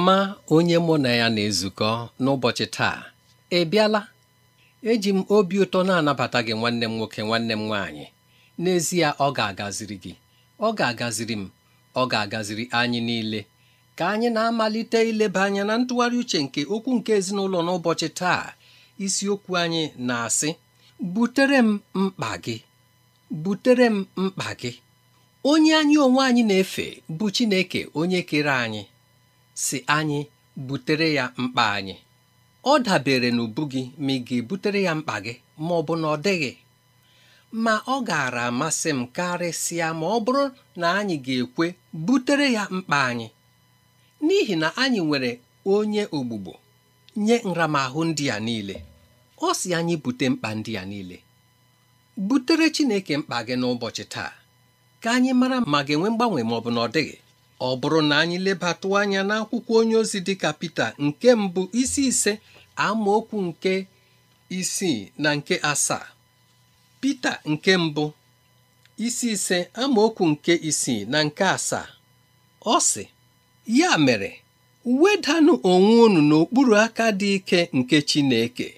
ọma onye mụ na ya na-ezukọ n'ụbọchị taa ị bịala eji m obi ụtọ na-anabata gị nwanne m nwoke nwanne m nwaanyị n'ezie ọ ga-agaziri gị ọ ga-agaziri m ọ ga-agaziri anyị niile ka anyị na-amalite ileba anya na ntụgharị uche nke okwu nke ezinụlọ n'ụbọchị taa isiokwu anyị na-asị butere m mkpa gị butere m mkpa gị onye anyị onwe anyị na-efe bụ Chineke onye kere anyị si anyị butere ya mkpa anyị ọ dabere n'ubu gị ma ị ga-ebutere ya mkpa gị ma ọ bụ na ọ dịghị ma ọ gaara amasị m karịsịa ma ọ bụrụ na anyị ga-ekwe butere ya mkpa anyị n'ihi na anyị nwere onye ogbugbo nye nramahụ ndị a niile ọ si anyị bute mkpa ndị a niile butere Chineke mkpa gị n'ụbọchị taa ka anyị mara ma ga-enwe mgbanwe ma ọ bụ na ọ dịghị ọ bụrụ na anyị lebatụ anya n'akwụkwọ onye ozi dịka Pita nke mbụ isi ise amaokwu nke isii na nke asaa Pita nke mbụ isi ise amaokwu nke isii na nke asaa ọ sị ya mere wedanụ onwe unu n'okpuru aka dị ike nke Chineke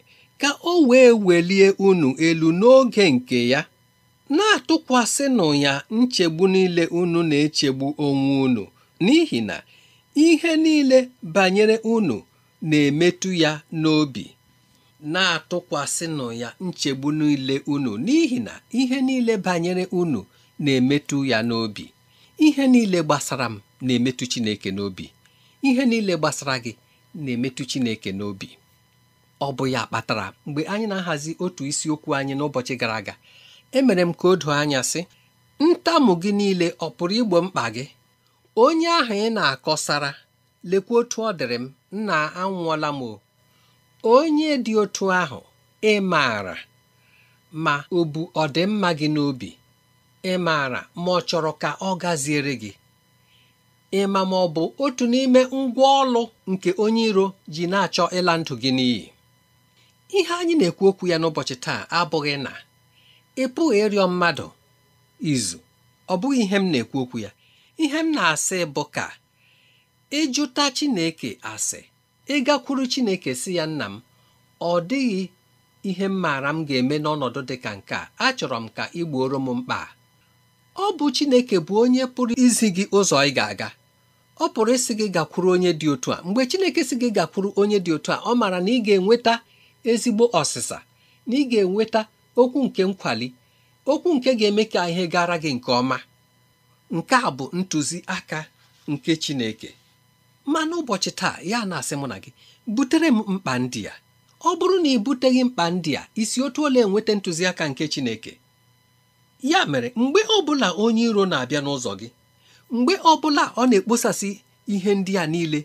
ka o wee welie unu elu n'oge nke ya na-atụkwasịnụ ya nchegbu niile unu na-echegbu onwe unu n'ihi na ihe niile banyere unu na-emetụ ya n'obi na-atụkwasịnụ ya nchegbu niile unu n'ihi na ihe niile banyere unu na-emetụ ya n'obi ihe niile gbasara m na-emetụ Chineke n'obi ihe niile gbasara gị na-emetụ Chineke n'obi ọ bụ ya kpatara mgbe anyị na-ahazi otu isiokwu anyị n'ụbọchị gara aga emere m ka o doo anya sị ntamu gị niile ọ pụrụ igbo mkpa gị onye ahụ ị na-akọsara lekwa otu ọ dịrị m nna anwụọla m o onye dị otu ahụ ị maara ma ọ bụ ọdịmma gị n'obi ị maara ma ọ chọrọ ka ọ gaziere gị ịma ma ọ bụ otu n'ime ngwa ọlụ nke onye iro ji na-achọ ịla ndụ gị n'iyi ihe anyị na-ekwu okwu ya n'ụbọchị taa abụghị na ị pụghị ịrịọ mmadụ izu ọ bụghị ihe m na-ekwu okwu ya ihe m na-asị bụ ka ịjụta Chineke asị ịgakwuru Chineke si ya nna m ọ dịghị ihe m maara m ga-eme n'ọnọdụ dị ka nke a achọrọ m ka ị gbuoro m mkpa ọ bụ Chineke bụ onye pụrụ izi gị ụzọ ị ga-aga ọ pụrụ ịsị gị gakwuru onye dị otu a mgbe Chineke si gị gakwuru onye dị otu a ọ maara na ị ga-enweta ezigbo ọsịsa na ị ga-enweta okwu nke nkwali okwu nke ga-eme ka ihe gara gị nke ọma nke a bụ ntụziaka nke Chineke ma n'ụbọchị taa ya na-asị mụ na gị butere m mkpa ndị a ọ bụrụ na ị buteghị mkpa ndị a isi otu ole enweta ntụziaka nke Chineke ya mere mgbe ọ bụla onye iro na-abịa n'ụzọ gị mgbe ọbụla ọ na-ekposasị ihe ndị a niile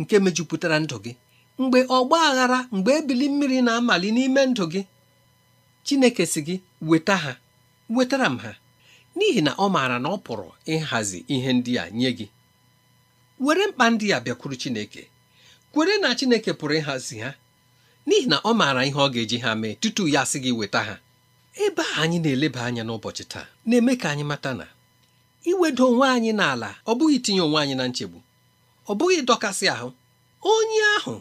nke mejupụtara ndụ gị mgbe ọgba aghara mgbe ebili mmiri na-amali n'ime ndụ gị Chineke si gị weta ha wetara m ha n'ihi na ọ maara na ọ pụrụ ịhazi ihe ndị a nye gị were mkpa ndị a bịakwuru Chineke kwere na Chineke pụrụ ịhazi ha n'ihi na ọ maara ihe ọ ga-eji ha mee tutu ya sị gị weta ha ebe a anyị na-eleba anya n'ụbọchị taa na-eme ka anyị mata na iwedo onwe anyị n'ala ọ bụghị itinye onwe anyị na nchegbu ọ bụghị ịdọkasị ahụ onye ahụ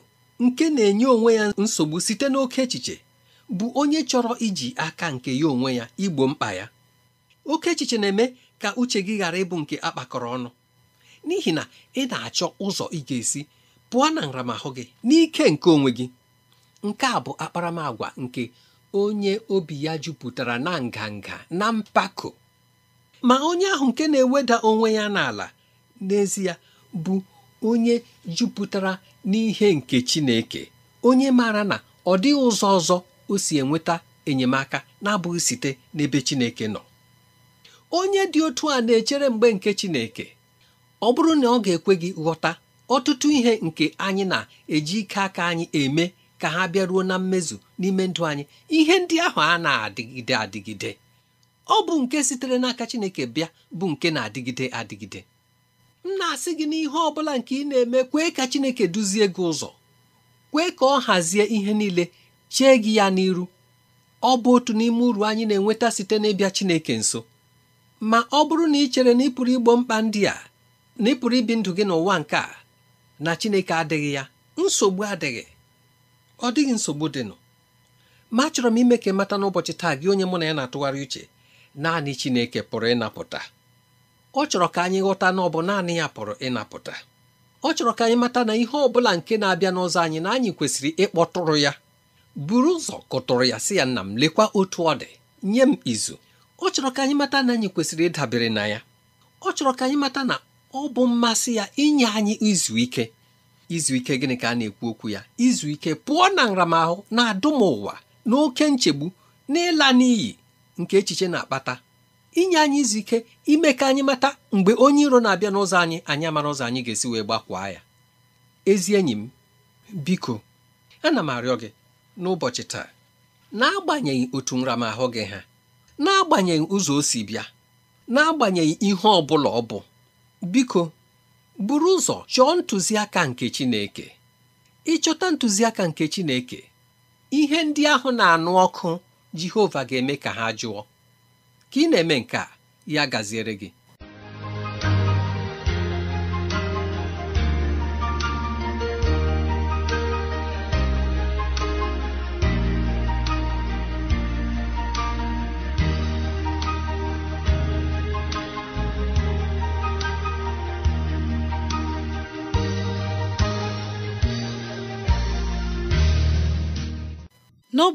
nke na-enye onwe ya nsogbu site n'oke echiche bụ onye chọrọ iji aka nke ya onwe ya igbo mkpa ya oke echiche na-eme ka uche gị ghara ịbụ nke akpakọrọ ọnụ n'ihi na ị na-achọ ụzọ ị ga-esi pụọ na nramahụ gị n'ike nke onwe gị nke a bụ akparamagwa nke onye obi ya jupụtara na nganga na mpako ma onye ahụ nke na-eweda onwe ya n'ala n'ezie bụ onye jupụtara n'ihe nke Chineke onye maara na ọ dịghị ụzọ ọzọ o si enweta enyemaka na-abụghị site n'ebe Chineke nọ onye dị otu a na-echere mgbe nke Chineke ọ bụrụ na ọ ga-ekwe gị ghọta ọtụtụ ihe nke anyị na-eji ike aka anyị eme ka ha bịaruo na mmezu n'ime ndụ anyị ihe ndị ahụ a na-adịgide adịgide ọ bụ nke sitere n'aka Chineke bịa bụ nke na-adịgide adịgide m na-asị gị n'ihe ọ bụla nke ị na-eme kwee ka Chineke duzie gị ụzọ kwee ka ọ hazie ihe niile chee gị ya n'iru ọ bụ otu n'ime uru anyị na-enweta site n'ịbịa Chineke nso ma ọ bụrụ na ị chere na ịpụrụ igbo mkpa ndị a na ịpụrụ ibi ndụ gị n'ụwa nke a na Chineke adịghị ya nsogbu adịghị ọ dịghị nsogbu dịnụ ma achọrọ m ime ka ị mata n'ụbọchị taa gị onye mụ na ya na-atụgharị uche naanị Chineke pụrụ ịnapụta ọ chọrọ ka anyị ghọta na ọ bụ naanị ya pụrụ ịnapụta ọ chọrọ ka anyị mata na ihe ọ bụla nke na-abịa n'ụzọ anyị na anyị kwesịrị ịkpọtụrụ ya buru ụzọ kụtụrụ ya sị ya nna m lekwa otu ọ dị nye m izu ọ chọrọ ka anyị mata na anyị kwesịrị ịdabere na ya ọ chọrọ ka anyị mata na ọ bụ mmasị ya inye anyị izu ike izu ike gịnị ka a na-ekwu okwu ya izu ike pụọ na nramahụ na adụm ụwa na oke nchegbu na ịla n'iyi nke echiche na-akpata inye anyị izu ike ime ka anyị mata mgbe onye iro na-abịa n'ụzọ anyị anyị amara ụzọ anyị ga-esi wee gbakwaa ya ezi enyi m biko ana m arịọ gị n'ụbọchị taa n'agbanyeghị otu nramahụ gị ha n'agbanyeghị ụzọ o si bịa n'agbanyeghị ihe ọ bụla ọ bụ biko buru ụzọ chọọ ntụziaka nke Chineke ịchọta ntụziaka nke Chineke ihe ndị ahụ na-anụ ọkụ Jehova ga-eme ka ha jụọ ka ị na-eme nke a ya gaziere gị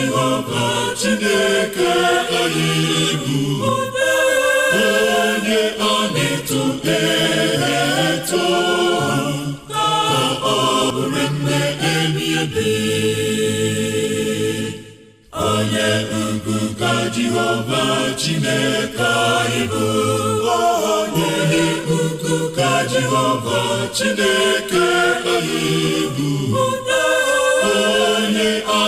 jehova chineke anyị bụ onye a na-eto eto ka ọ bụrụ nne ebi onye ugwu ka jehova chineke anyị bụ onye ugwu ka jehova chineke anyị bụ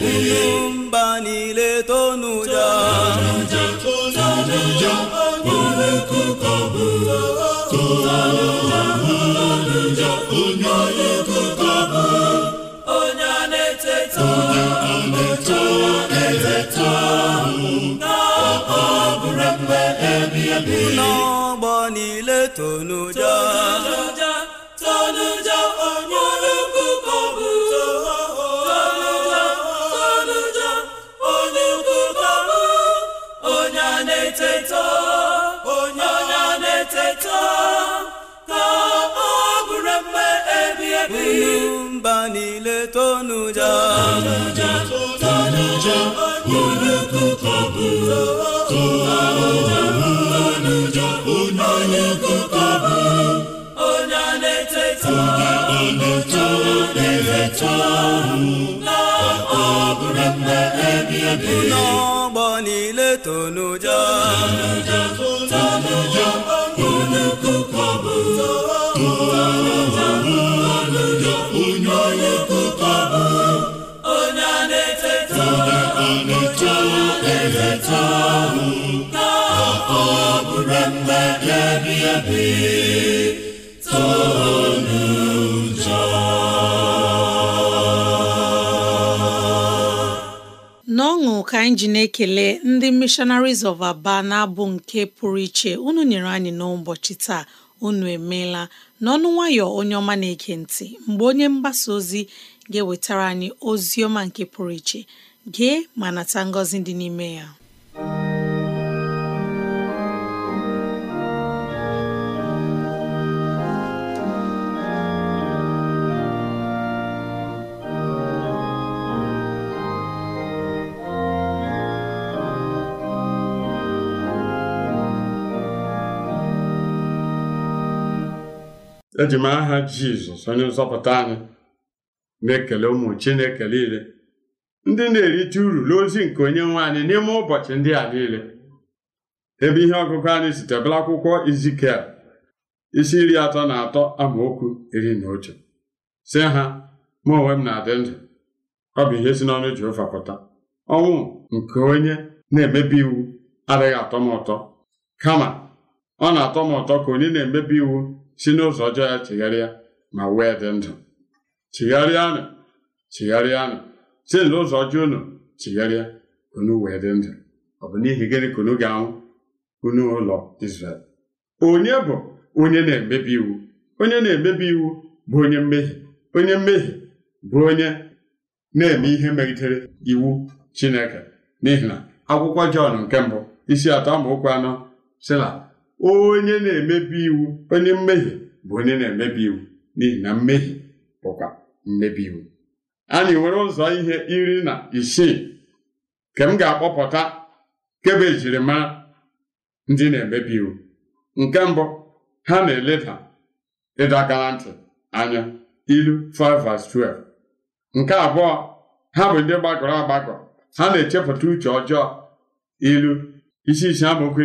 unu mba niile tonuja tonuja onye kuka onye tonuja tonuja onye kuka bụrụ onye onye ebi ebi n'ọgbọ niile tonu mba niile tonu ja tonuja olukuka bụ tonuja onye na na na ọ n'ọgbọ niile tonuja tonuja eto ka n'ọṅụ ka anyị ji na-ekele ndị missionaries of Aba na-abụ nke pụrụ iche unu nyere anyị n'ụbọchị taa unu emeela n'ọnụ nwayọ onye ọma na-ege ntị mgbe onye mgbasa ozi ga-ewetara anyị ozi ọma nke pụrụ iche gee ma nata ngọzi dị n'ime ya eji m aha jizọs onye nzọpụta anyị na-ekele ụmụ na-ekele niile ndị na-erite uru n'ozi nke onye nwe anyị n'ime ụbọchị ndị a niile ebe ihe ọgụgụ anyị sitebela akwụkwọ izikiel isi iri atọ na atọ amaokwu iri na otu si ha ma onwe m na-adị ndụ ọ bụ ihe si n'ọnụ ji ụfapụta ọnwụ nke onye na-emebi iwu adịghị atọ m ụtọ kama ọ na-atọ m ụtọ ka onye na-emebi iwu si n'ụzọ ọjọọ ya chigharịa ma wee dị ndụ chigharịanụ chigharịanụ site na ụzọ ọjọọ unu chigharịa unu wee dị ndụ ọ bụ n'ihi gịnị ka unu ga-anwụ unu ụlọ Izrel onye bụ onye na-emebi iwu onye na-emebi iwu bụ onye mmehie onye mmehie bụ onye na-eme ihe megidere iwu Chineke n'ihi na akwụkwọ Jọn nke mbụ isi atọ amaokwu anọ si na onye na-emebi iwu onye mmehie bụ onye na-emebi iwu n'ihi na mmehie bụkwa mmebi iwu anyị nwere ụzọ ihe iri na isii nke m ga-akpọpụta kebe jirimara ndị na-emebi iwu nke mbụ ha na-eleda ịdọ aka na ntị anya ilu 5:12 nke abụọ ha bụ ndị gbagọrọ agbagọ ha na-echepụta uche ọjọọ ilu isi isi amaokwu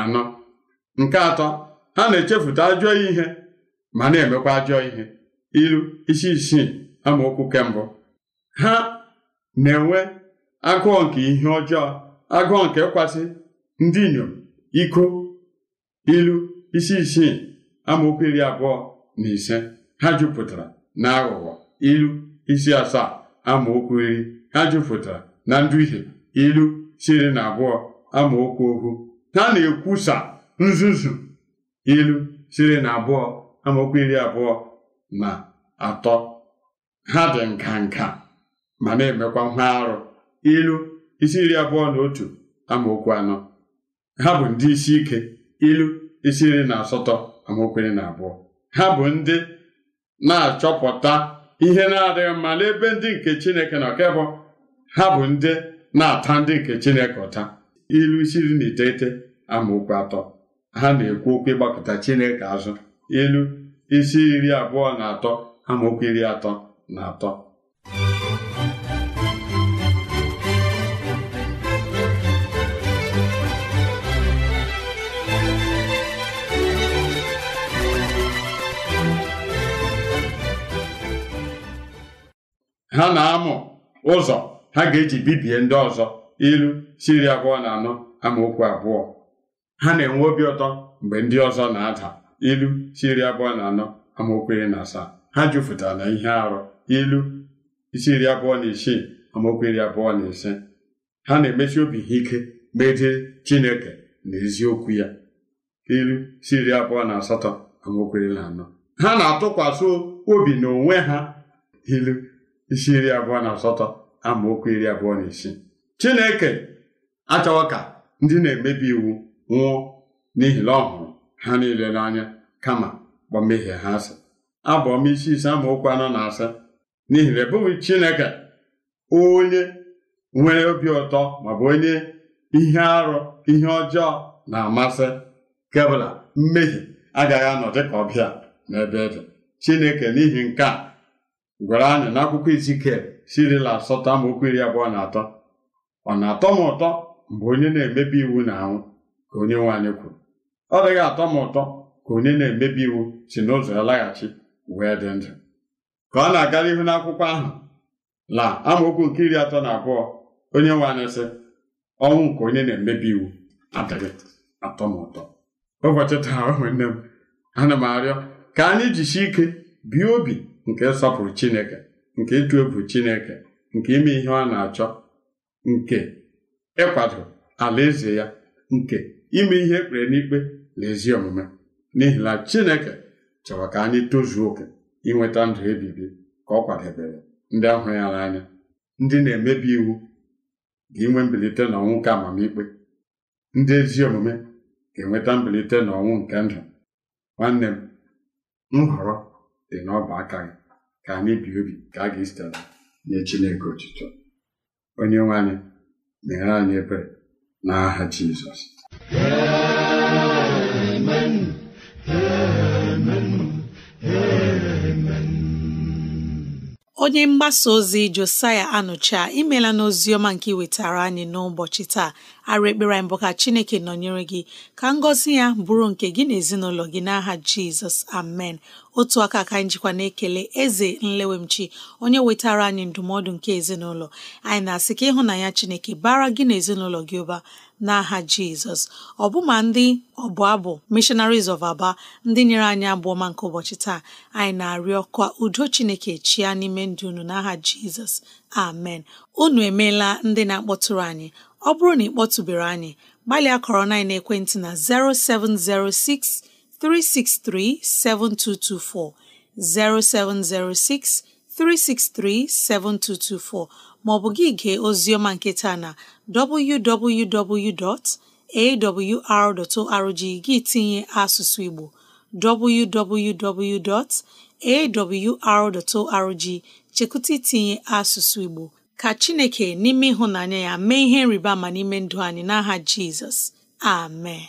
anọ nke atọ ha na-echefuta ajọ ihe ma na-emekwa ajọ ihe ilu isi isii amaokwu kemgbe ha na-enwe agụọ nke ihe ọjọọ agụọ nke ịkwasị ndị inyom iko ilu isi isii amaokwu iri abụọ na ise ha jupụtara na aghụghọ ilu isi asaa amaokwu iri ha jupụtara na ndụ nduhie ilu siri na abụọ amaokwu okwu ha na-ekwusa nzuzu ilu siri na abụọ amaokwu iri abụọ na atọ ha dị nka nka ma na-emekwa nha arụ ilu isi iri abụọ na otu amaokwu anọ ha bụ ndị isi ike ilu isi iri na asatọ amaokwu iri na abụọ ha bụ ndị na-achọpụta ihe na-adịghị mma n'ebe ndị nke Chineke na ọkebụ ha bụ ndị na-ata ndị nke Chineke ụta ilu isi iri na iteghete amaokwu atọ ha na-ekwu okwu ịgbakọta Chineke azụ ilu isi iri abụọ na atọ amaokwu iri atọ na ha na-amụ ụzọ ha ga-eji bibie ndị ọzọ ilu siri abụọ na anọ amaokwu abụọ ha na-enwe obi ụtọ mgbe ndị ọzọ na-ada ilu siri abụọ na anọ amaokwu iri na asaa ha jupụtara na ihe arụ ilu isi iri abụọ na isii amaokwu iri abụọ na ise ha na-emesi obi ha ike megide Chineke na eziokwu ya ilu isi iri abụọ na asatọ amaokwu iri na anọ ha na-atụkwasị obi n'onwe ha ilu isi iri abụọ na asatọ amaokwu iri abụọ na isii Chineke achọwa ka ndị na-emebi iwu nwụọ n'ihi na ọ hụrụ ha niile n'anya kama gbọ ha asị abụ ọma isi ise amaokwu anọ na asa n'ihi na ebụghị Chineke onye nwere obi ụtọ maọbụ onye ihe arụ ihe ọjọọ na-amasị kebụla mmehie agaghị anọ dịka ọbịa n'ebe e dị Chineke n'ihi nke a gwara anyị n'akwụkwọ Izikiel sirila asatọ amaokwu iri abụọ na atọ ọ na-atọ m ụtọ mgbe onye na-emebi iwu na-anwụ ka onye nwe anyị kwuru ọ dịghị atọ m ụtọ ka onye na-emebi iwu si n'ụzọ ya laghachi wee dị ndụ ka ọ na aga ihu n'akwụkwọ ahụ na amaokwu nke iri atọ na abụọ onye nwe anyị sị ọnwụ nke onye na-emebi iwu adịghị atọ m ụtọ ụbọchị taa ụmụnne m ana m arịọ ka anyị jisi ike bie obi nke ịsọpụrụ Chineke nke ịtụ egwu Chineke nke ime ihe ọ na-achọ nke ịkwado alaeze ya nke ime ihe ekpere n'ikpe na ezi omume n'ihi na Chineke chọrọ ka anyị tozuo oke inweta ndụ ebibi ka ọ kwadebere ndị ahụ ya n'anya ndị na-emebi iwu ga-enwe mbilite n'ọnwụ nke amamikpe ndị ezi omume ga-enweta mbilite n'ọnwụ nke ndụ nwanne m nhọrọ dị n'ọba aka gị ka anyị bie obi ka a ga-esitela nye Chineke otutu onye nwe anyị anyị ebere n'aha Jizọs onye mgbasa ozi josaya anụcha imela n'oziọma nke wetara anyị n'ụbọchị taa arụ ekpere anyị bụ ka chineke nọnyere gị ka ngọzi ya bụrụ nke gị na ezinụlọ gị n'aha jizọs amen otu aka ka anyị jikwa na-ekele eze nlewemchi onye wetara anyị ndụmọdụ nke ezinụlọ anyị na-asị ka ịhụnanya chineke bara gị na ezinụlọ gị ụba n'aha jizọs ọbụma ndị ọbụ abụ missionaries of aba ndị nyere anyị abụọma nke ụbọchị taa anyị na-arịọ ka udo chineke chia n'ime ndụ unu n'aha jizọs amen unu emeela ndị na-akpọtụrụ anyị ọ bụrụ na ị kpọtụbere anyị gbalịa kọrọ na ekwentị na 0706 363 7224 0706 363 7224 maọbụ gị gee ozioma nke taa na www.awr.org gị tinye asụsụ Igbo www.awr.org chekwute itinye asụsụ Igbo ka Chineke n'ime ịhụnanya ya mee ihe nriba ama n'ime ndụ anyị n'aha Jizọs amen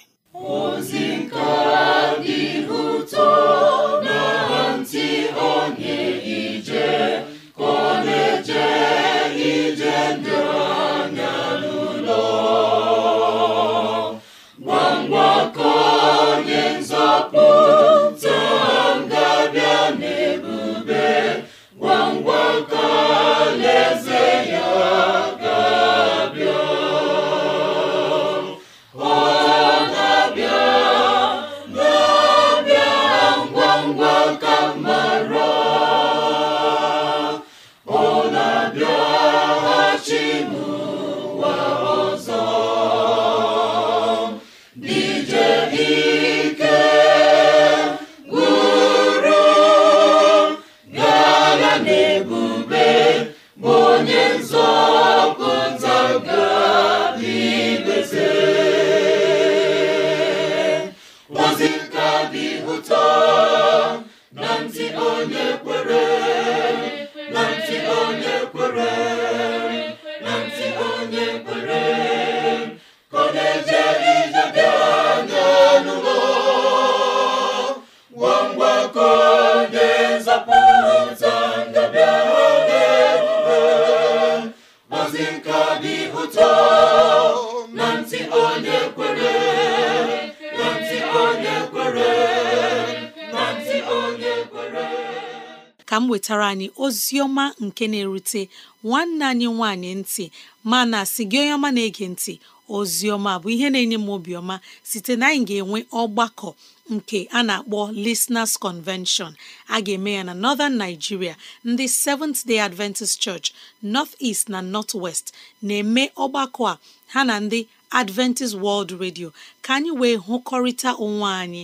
Ozioma nke na-erute nwanne anyị nwanyị ntị mana si gị onye ọma na-ege ntị ozioma bụ ihe na-enye m obiọma site na anyị ga-enwe ọgbakọ nke a na-akpọ Listeners Convention a ga-eme ya na Northern Nigeria ndị Seventh Day Adventist Church North East na North West na-eme ọgbakọ a ha na ndị Adventist World Radio ka anyị wee hụkọrịta onwe anyị